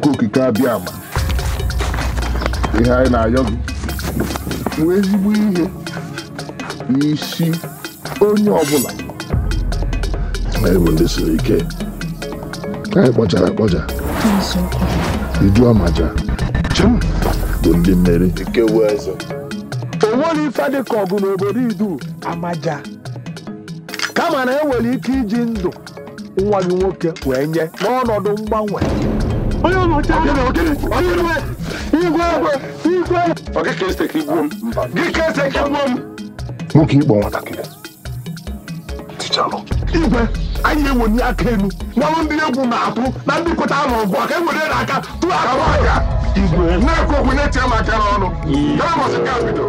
chukwu okike abịa ma ihe anyị na-ayọ gị nwee ezigbo ihe n'isi onye ọbụla anyị bụ ndị siri ike anyị kpọchara akpọcha Iju amaja bụ ndị mmeri onweghị ife dị ka ọgụ n'obodo idu amaja kama na enwere ike iji ndụ nwa gị nwoke wee nye n'ọnọdụ mgbanwe E e nwoke ịkpọ nwatakịrị tichalụ igwe anyị na-eweli aka elu gbalụ ndị egwu na-atụ na ndị pụta n'ọgụ aka ewere n'aka tụọ aka igwe na-ekwu okwu na-etinye m aka n'ọnụ ya masị ka bido